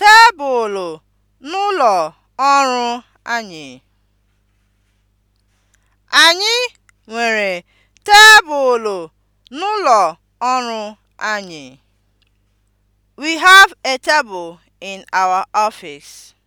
tebụl n'ụlọ ọrụ anyị. Anyị nwere tebụl n'ụlọ ọrụ anyị. We have a table in our office.